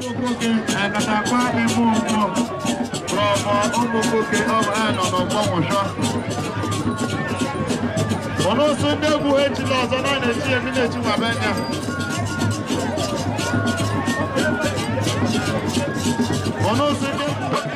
Umukoke Akatakwa Ime Ụmụ from Umukoke of Anon of Gbomosho. Ọ̀nà oṣù ndị egwu ejila ọzọ na na-echi emi na-echi nwa benya. Ọ̀nà oṣù ndị egwu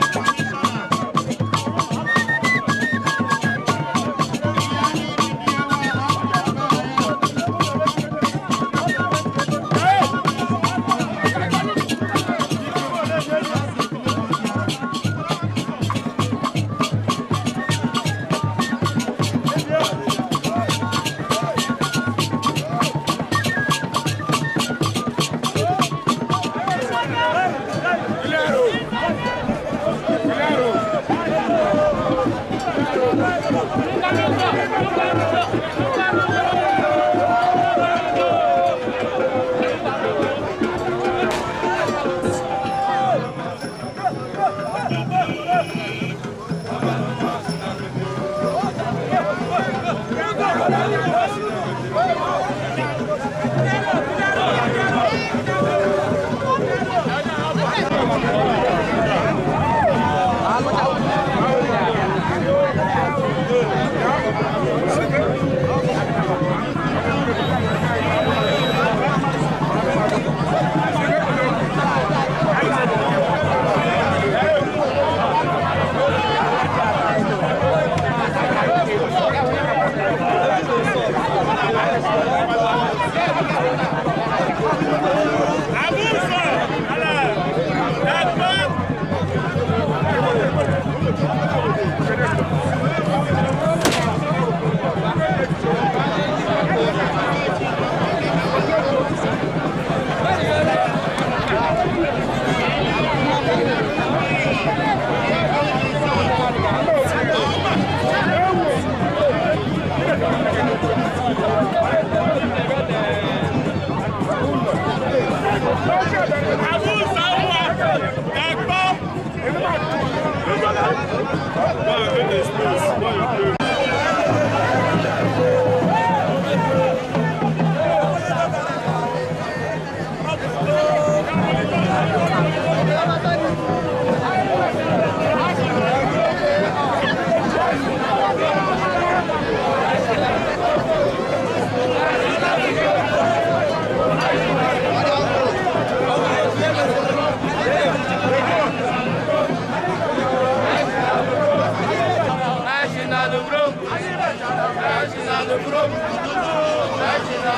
Nasce na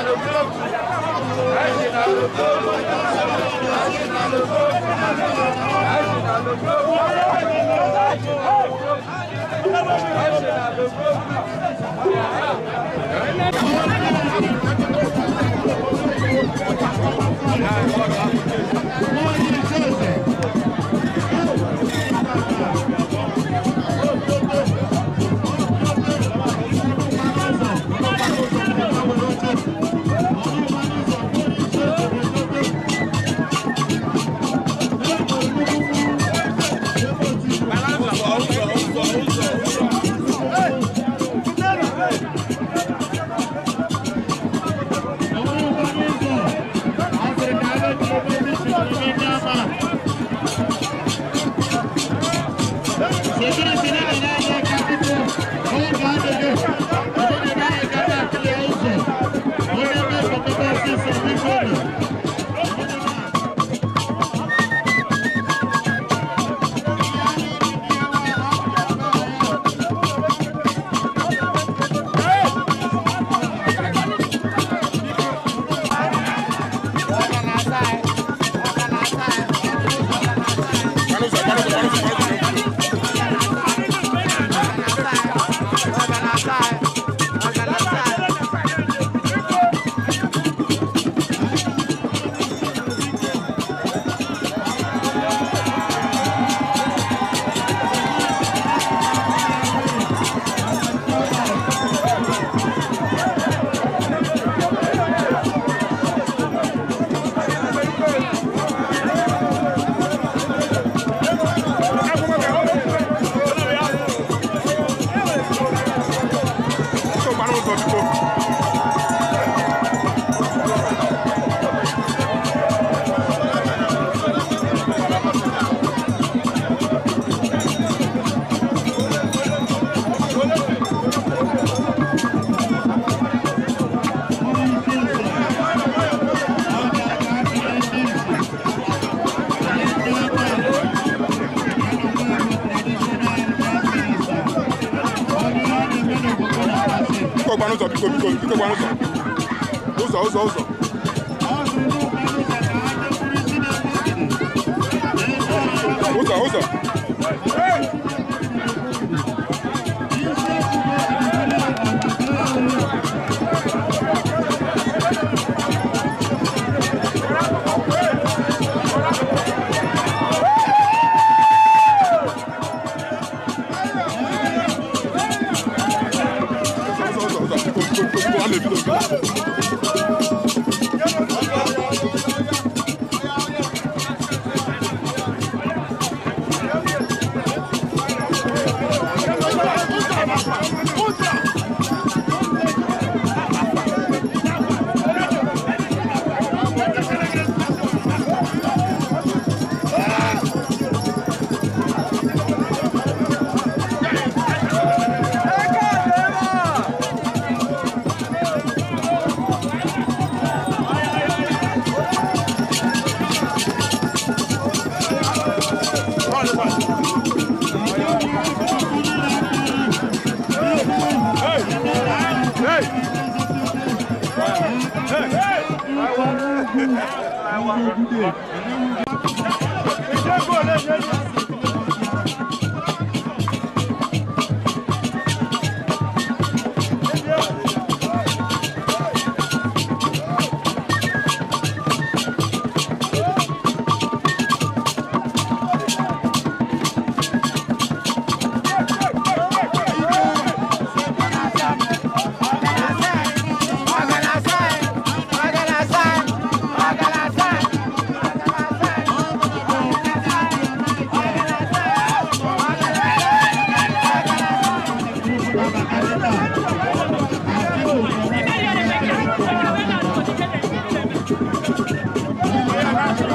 no grupo, nasce n o g r u p I'm one.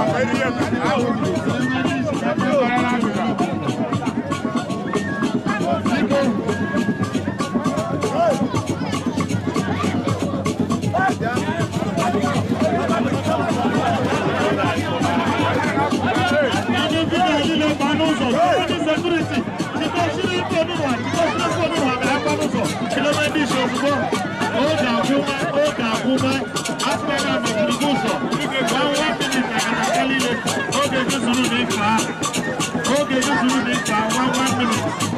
Ó dàgúnmẹ́ ó dàgúnmẹ́, á fẹ́ràn mẹ̀kìrì gúúsọ̀. Okay, just a little bit Okay, just a little bit One, one minute.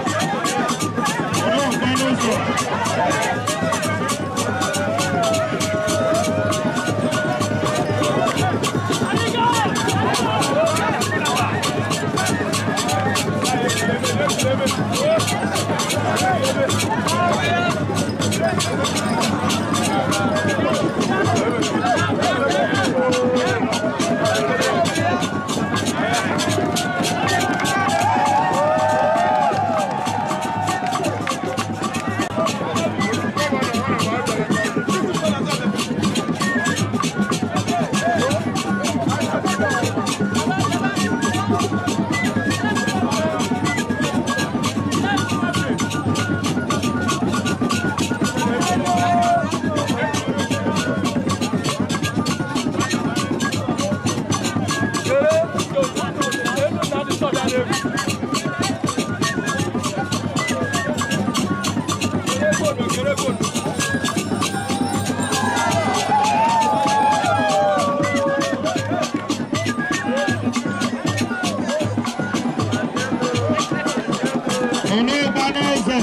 ọlọ́gbanẹ́sẹ̀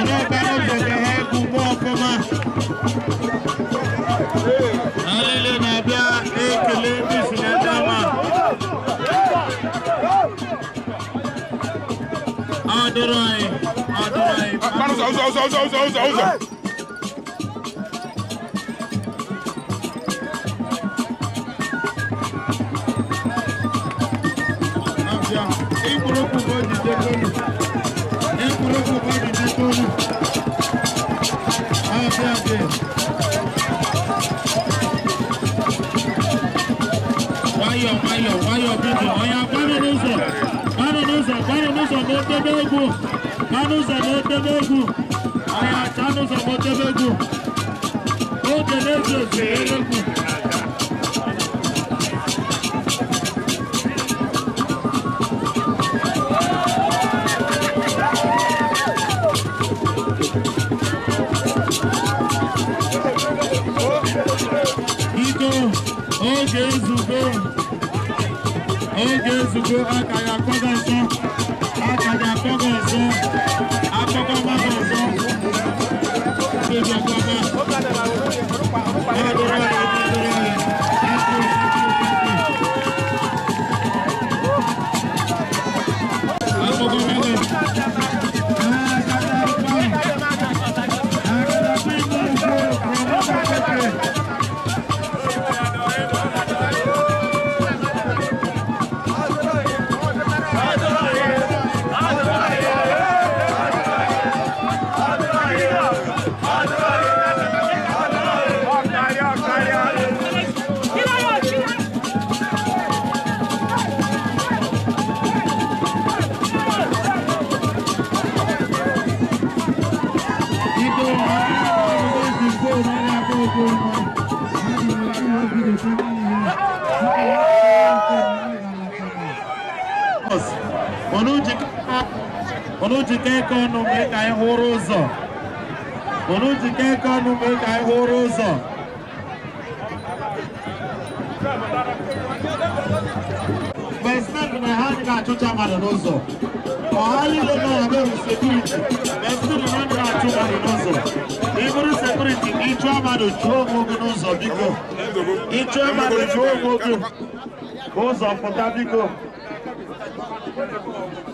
ọlọ́gbanẹ́sẹ̀ kẹ̀hẹ́ kúkú ọkọ̀má. alele na-abịa ekele ndị si na ndị ọma. ọ dịrọ anyị ọ dịrọ anyị. ụzọ ụzọ ụzọ ụzọ ụzọ. ayọ̀ ayọ̀ ayọ̀ bìbì ọ̀yà gbárùn ụzọ̀ gbárùn ụzọ̀ gbárùn ụzọ̀ ma otebe egwu gbárùn ụzọ̀ ma otebe egwu ọ̀yà chanụ ụzọ̀ ma otebe egwu oge na-eji osere egwu Jesus. onye ga-ezube aka ya kwado go. Olujikeko Nume Kai Horozo. Olujikeko Nume Kai Horozo. Besnak Nahani Kachucha Maranozo. Kohali Lema Yabe Security. Besnak Nahani Kachucha Maranozo. Iburu Security, Ichwa Madu Chuo Mogu Nozo Biko. Ichwa Madu Chuo Mogu. Gozo Pota Biko. Thank you.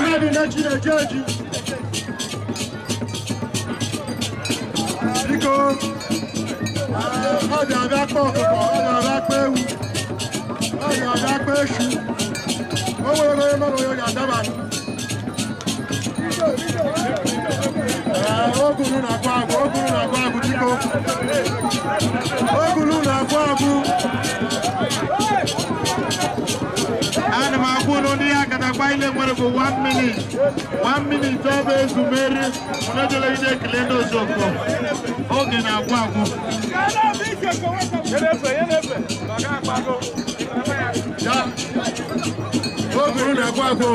mmadụ na-eji eji eji biko ọ ga-abịa kpa ọkụkọ ọ ga-abịa kpa ewu ọ ga-abịa kpa esu o nwere onye mmadụ onye ga-adaba ogulu na-agwụ agwụ ogulu na-agwụ agwụ biko ogulu na-agwụ agwụ fayle ngore ko one minute one minute toɓe sumere mono joloyide kilendo sokko o gena kwaku o guruna kwaku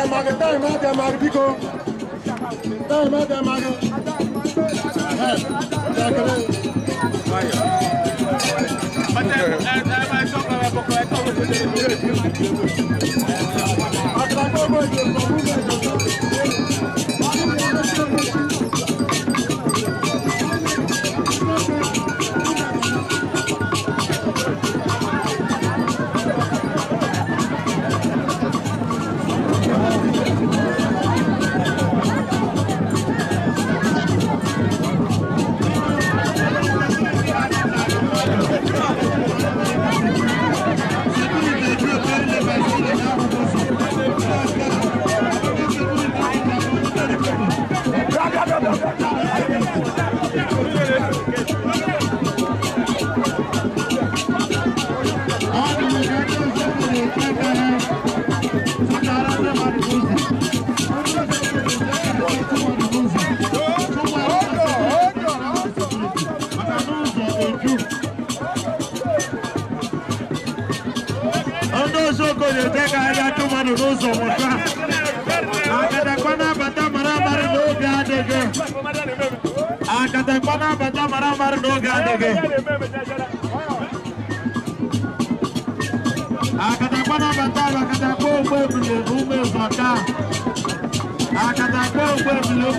dẹ̀mọ̀gì táìmọ̀ dẹ̀mọ̀gì bíkọ́ táìmọ̀ dẹ̀mọ̀gì ẹ̀ dẹ̀kẹ̀rẹ̀. Atrapalhou, meu Deus, vamos Ik ụzọ mụta akadakpa na-abata mara amarị n'oge adịghị akadakpa na-abata mara amarị n'oge adịghị akadakpa na-abata akadakpa ogbe ebule ume zọta akadakpa ogbe ebule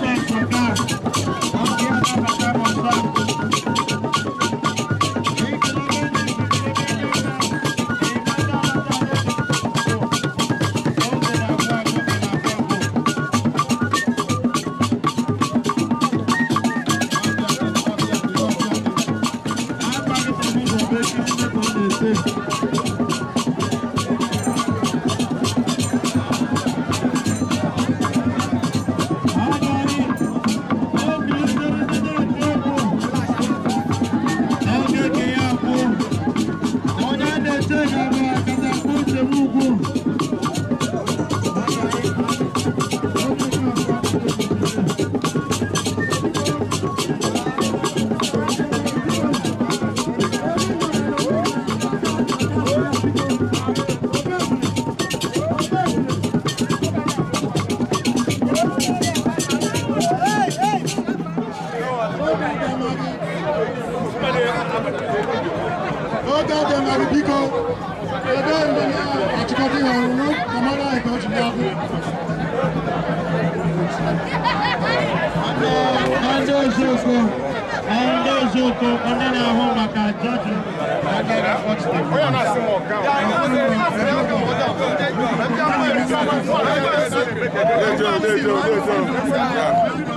Let's go, let's go, o go.